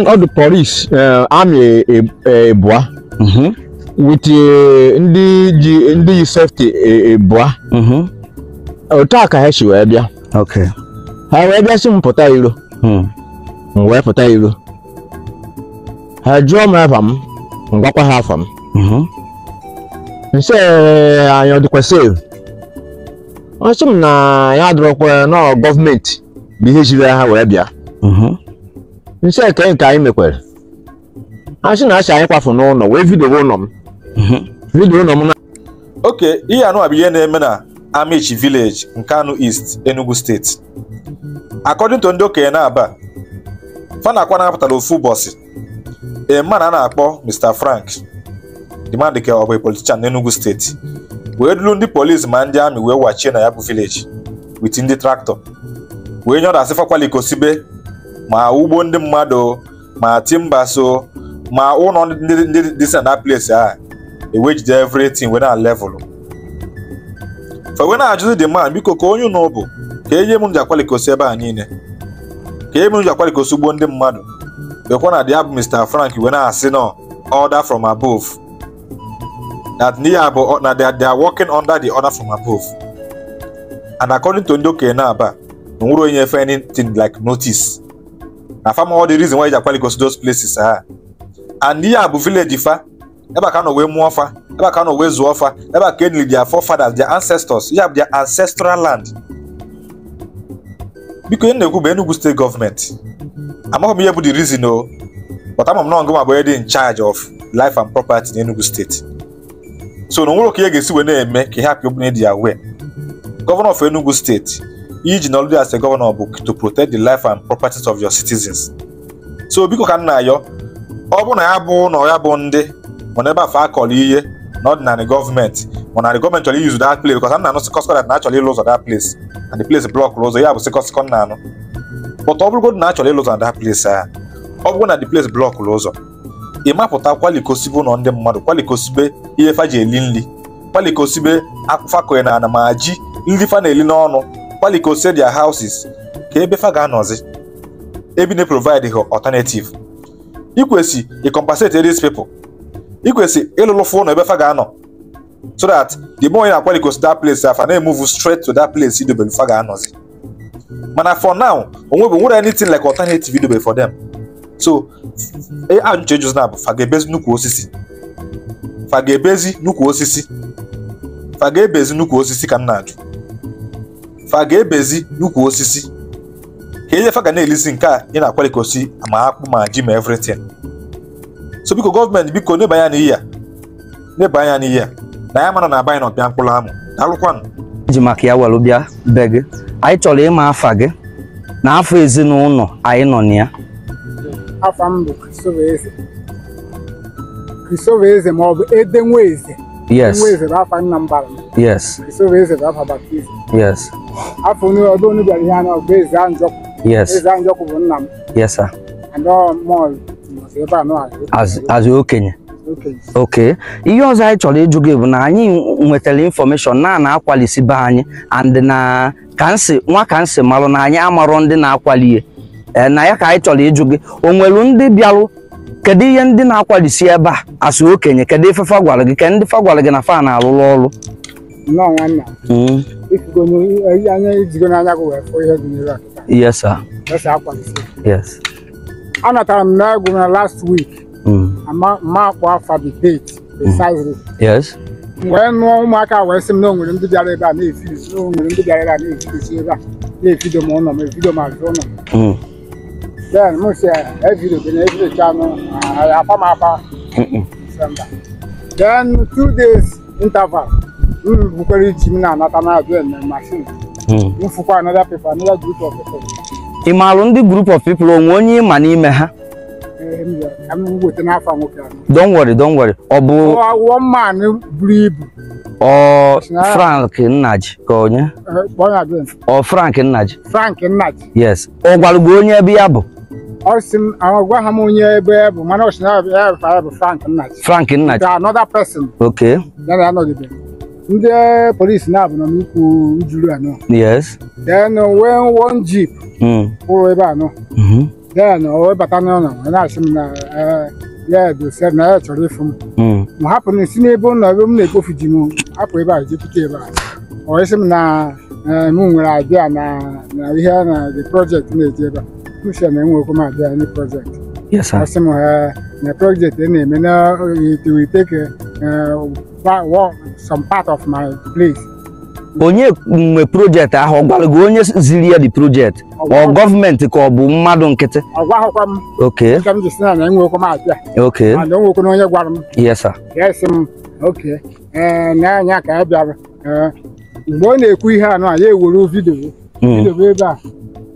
ọdụ polis eh, amị ebua e, e, mm-hmm. wit eh, ndị ji ndị yi sefti ebua e, mm-hmm. otu a ka ha si wee bịa ha wee bịa si m pụta iro m hmm. wee pụta iro ha jụọ m afa m ngwakwa ha afa m mm-hmm. nse eh, anyị ọdịkwasị ọ sị m na ya adịrọkwa nọ gọọmenti bụ ihe jiri ha wee bịa nse eke nke anyị mekwere asị na asị anyị kwafu n'ụlọ wee vidio ụlọ m mhm. vidio ụlọ m na oke ihe anụ bụ ihe na-eme na Amaechi nke anụ East Enugu steeti according ndị okenye na-aba fanakwa na-apụtara ofu ụbọchị ema na a na-akpọ Mr Frank dimandike ọ bụ politishan n'Enugu steeti wee duru ndị polisi ma ndị amị wee wachie na ya bụ village wit ndị traktọ wee nyọdasị fakwalikosi be ma ugbo ndị mmadụ ma timba so ma ụlọ ndị dị na place a. ewejide everything wee na level fa wee na-ajụzi dị man biko ka onye ụnụ bụ ka enye m njakwalikosi ebe a niile ka enye m njakwalikosi ugbo ndị mmadụ bekwa na dị abụ Mr Frank wee na-asị nọ order from above that n'ihe abụ na they are working under the order from above and according to ndị okenye na-aba na onye efe anything like notice na farm all the reason why e go to those places ha ah. and ihe abu village fa ebe a ka nọ wee mụọ fa ebe a ka nọ wee zụọ ebe a ka nili their forefathers their ancestors ihe a their ancestral land biko ihe na-ekwu bụ Enugu steeti gọọmenti amaghị m ihe bụ the reason o oh. but ama m na ọngụ ma bụ e dị in charge of life and property in Enugu steeti so na nwere ka ihe ga-esi wee na-eme ka ihe hapụ obune dị gọvanọ of Enugu steeti iji nọlụdị as a governor bụ to protect the life and properties of your citizens so biko ka nna na ọ bụ na ya bụ na ya bụ ndị mana ebe afọ akọrọ ihe na ọdịnala gọọmenti mana gọọmenti chọrọ iyuzu that place because m na-anụ sikọsikọ dat na achọrọ ịlụ ụzọ that place and the place blọk ụzọ ya bụ sikọsikọ nna anụ but ọ bụrụgodị na achọrọ ịlụ ụzọ na that place a ọ bụrụ na de place blọk ụzọ ị mapụta kwalikosibe ụlọ ndị mmadụ kwalikosibe ihe faji eli nri kwalikosibe akwụfa koye na ana ma ji nri fa na-eli n'ọnụ gbalị say see their houses ka ebe fa ga-anọzi ebe na provide ha alternative ikwesị ịcompensate these people ikwesị ịlụlụ fụ ụlọ ebe fa ga-anọ so that the more na-akwali that place afa na-emove straight to that place idobe fa ga-anọzi mana for now onwe bụ nwere anything like alternative idobe for them so e, ajụjụ ejụzi na bụ fa ebezi nnukwu osisi fa ebezi nnukwu osisi fa ebezi nnukwu osisi ka m na-ajụ fa ga-ebezi n'ukwu osisi ka ihe fa ga na-elizi nke a ị na-akwali ka osi ma akpụ ma ji ma everything so biko gọọmenti biko neba anya n'ihe a neba anya n'ihe a na ya mara na abanyị na ọbịa mkpụrụ amụ daalụkwanụ ji maka ya were bịa be gị anyị chọrọ ịma afa gị na afọ ezinụlọ anyị nọ na ya Yes Yes. So eze bụ afa baptizim. Yes. Afọ ọdụ onye bịara ihe anya bụ eze Anjọkụ. Yes. Eze Anjọkụ bụ nna m. Yes sir. And all mall ebe a nọ azụ okenye. oke ihe ọzọ anyị chọrọ ịjụ gị bụ na anyị nwetara infọmeshọn na na-akwalisi be anyị and na nwa marụ na anyị amarọ ndị na-akwali eh, na ya ka anyị chọrọ ịjụ gị o nweru ndị bịarụ kedu ndị na-akwalisi ebe a asị okenye kedu ife gwara gị ka na fa na No nnọọ nwanna anya ejigo n'anya gị wee fụ ihe dị n'ire yes sir yes akwa yes anatara m na egwu na last week I'm ma going for the date precisely yes wee nụọ ụmụaka wee sị m na o nwere ndị bịara ebe a na-efiri o nwere ndị bịara ebe a na-efiri ebe a na-efido m ụlọ m efido m azụ ụlọ m then m si evido bi na evido chanụ afa m afa then two days interval we bukwara iji m na anata na adụ eme machine mfụkwa hmm. another paper another group of people ị maalụ ndị group of people onwe onye ịma eh, don't worry don't worry ọ bụ one man buru ibu frank nnaji ka onye eh, ọ frank nnaji frank nnaji yes ọ gwarụgo onye ebe ya bụ gwa ha m onye ebe ya bụ mana ọchịna ya bụ frank nnaji frank nnaji another person okay ndị polisi na-abụ nọ n'ukwu ujuru a yes then uh, when one jeep kwụrụ ebe a then o webata n'ọnọ na-asị m na ya dosef na ya chọrọ ịfụ m m hapụ na si n'ebe ụlọ ebe m na-ekpofu ji m hapụ ebe a jepụta ebe a ọ sị m na m nwere abịa na ihe na the project na-eje ebe a mshe na enwekwu m abịa na project ọ sị m na project na-eme uh, na take. Uh, that was some part of my place. onye nwe projekti ahụ ọ gwara gị onye ziri ya di projekti ọ gọọmenti ka ọ bụ mmadụ nkịtị ọ gwaghịkwa m oke m ji si na na m abịa oke mana na onye gwara m yes sir yes m oke ee na-anya ka ya bịara mgbe ọ na-ekwu ihe anụ a ya ewere vidio hmm. vidio ebe a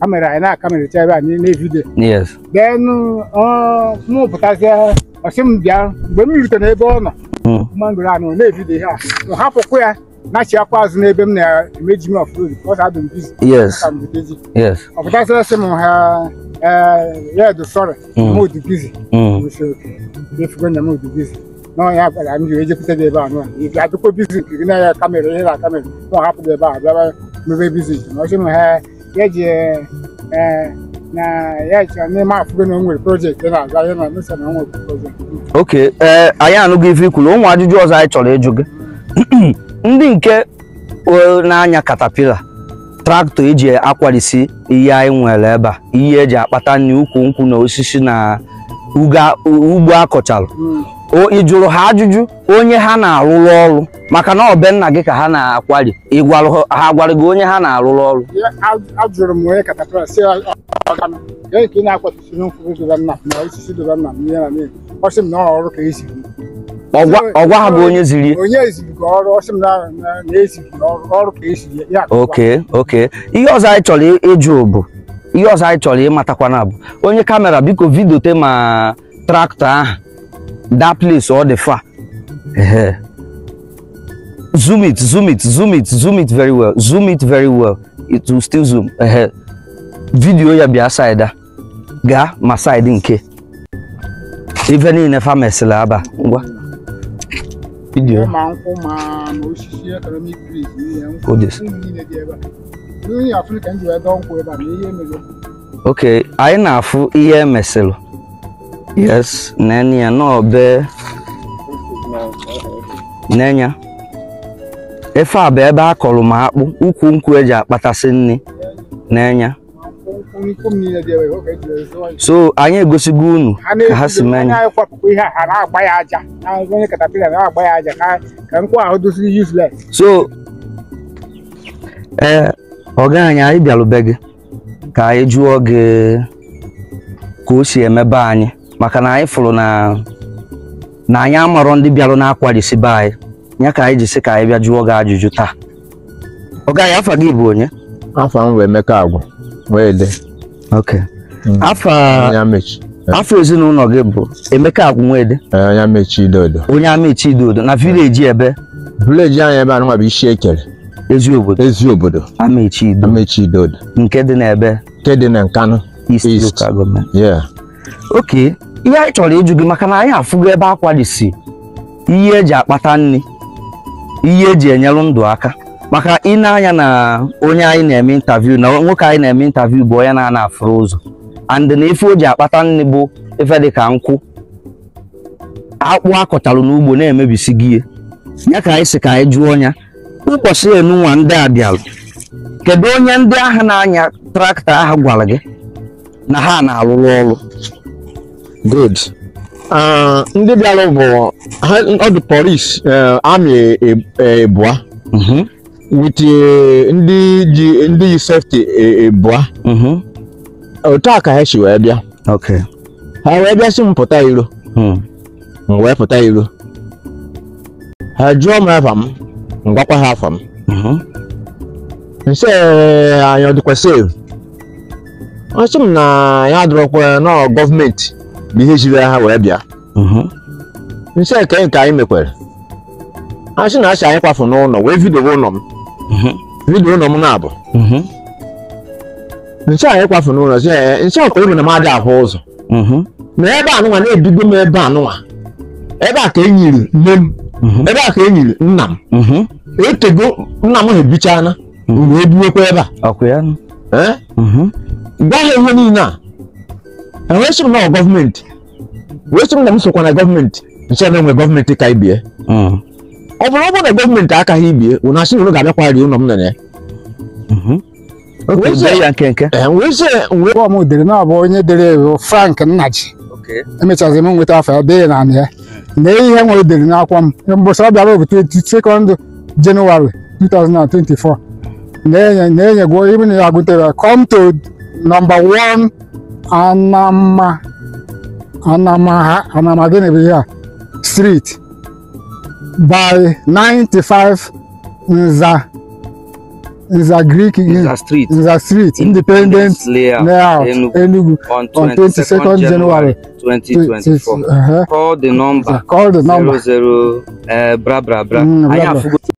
kamera anyị na-akamerịcha ebe a niile vidio then mụpụtazie ọsị m bịa mgbe m rutere n'ebe ọ nọ mango ahụ na-ebido ihe a hapụkwa ya na-achịakwa azụ n'ebe m na-emeji m ọfụrụ because I've been busy. Yes. Yes. ọ pụtasịrị sị m ha red sorry mm. mm. m dị busy efugo na m dị busy n'ọnya gwara m jiri ejekwute gị ebe a nụa ị ga-adịkwa bizi nke gị na-aya kamera ihe na kamera m hapụ gị ebe a bịaba mebe bizi ọsị m ha eji na ya chọrọ n'ime afọ na nwere projekti na-aga ya na mesa na nwere projekti oke ee eh, anyị anụghị ife ikwuru ụmụ ajụjụ ọzọ anyị chọrọ ịjụ gị ndị nke na-anya katapila traktọ eji akwarisi ihe anyị nwere ebe a ihe eji akpata nri ukwu nkwụ na osisi na ugbo akọchalụ hmm. ị jụrụ ha ajụjụ onye ha na-alụrụ ọrụ maka na ọbẹ nna gị ka ha na-akwari ịgwara ha gwara gị onye ha na-alụrụ ọrụ ajụrụ ihe e ha bụ ziri ihe ọzọ anyị chọrọ ịjụ bụ ihe ọzọ anyị chọrọ ịmatakwana bụ onye kamera biko vidote ma traktọ ahụ that place or the far. zoom it, zoom it, zoom it, zoom it very well, zoom it very well. It will still zoom. Video ya bia side ga ma side nke. Even in a farm slaba. Video. Odis. Okay, anyị na-afụ ihe emesịrị Yes, Nenya, no be. Nenya. efe a bụ ebe a kọrọ m akpụ, ukwu nkwụ eji akpatasị nri n'enya. So anyị egosigo unu ka ha si mee ya. So ee eh, ọga anyị anyị bịarube gị ka anyị jụọ gị ka o si emebe anyị. maka na anyị fụrụ na na anyị amarọ ndị bịara na-akwarisi be anyị ya ka anyị ji sị ka anyị bịa jụọ gị ajụjụ taa ọ gaghị afa gị bụ onye afa m wee emeka agwụ wee de ok mm. afọ eh. ezinụlọ gị bụ emeka agwụ nwede eh, onye amechi idodo onye amechi idodo na vileji ebe vileji anyị ebe anụnwa bụ isi ekere ezi obodo ezi obodo amechi idodo amechi idodo nke dị n'ebe nke dị na east, east. Yeah. ok ihe anyị chọrọ ịjụ gị maka na anyị afụgo ebe akwa dị si ihe eji akpata nri ihe eji enyelụ ndụ aka maka ị na-anya na onye anyị na-eme intaviu na nwoke anyị na-eme intaviu bụ onye na-ana afụrụ ụzọ and na ife o ji akpata nri bụ ife dị ka nkwụ akpụ akọtalụ n'ugbo na-emebisi gị ya ka anyị si ka anyị jụọ ọnya ụbọchị enunwa ndị a bịalụ kedu onye ndị ahụ na-anya traktọ ahụ gwara gị na ha na-arụrụ ọrụ good ah, ndị bịara bụ ọdụ dị polis eh, amị e, e, ebua mhm. with eh, ndị ji ndị yi sefti e, ebua mhm. otu a ka ha si wee bịa ha wee bịa si m pụta iro hmm. m wee pụta iro ha jụọ m afa m m ha afa m mhm. nse eh, anyị ọ dịkwa sev ọ sị m na ya adọrọkwa nọọ gọọmenti bụ ihe jiri ha wee bịa nche nke nke anyị mekwere asị na asị anyị kwafu n'ụlọ wee vidio ụlọ m vidio ụlọ m na-abụ nche anyị kwafu n'ụlọ nche ọka ebe na m adị ahụ ụzọ na ebe anụnwa na-ebido m ebe anụnwa ebe a ka enyiri nne m ebe a ka enyiri nna m etego nna m ha ebichana wee biwekwa ebe a gwa ha ihe niile a na wee sịrị na gọọmenti wee sịrị na m sokwa na gọọmenti nche na enwe gọọmenti ka ibie ọ bụrụ ọ bụrụ na gọọmenti akaghị ibie ụnụ asị na ụnụ ga-abịakwa rie ụlọ m nene m dere na ọ bụ onye ewu Frank Nnaji emechazị m nweta e afọ ya dee ya na ya ihe nwere dere n'akwụkwọ m mbọsị ọ bịara bụ 22 Jenụwarị 2024 na-enye gụọ ibe na ya agụtere come to number one Anama Anama Anama Genevieve Street by 95 Nza Nza Greek Nza Street Nza Street Independent Layer. Enugu on 22nd January 2024. Uh -huh. Call the number. Call the number. 00 uh, bra bra bra. Mm, bra, bra.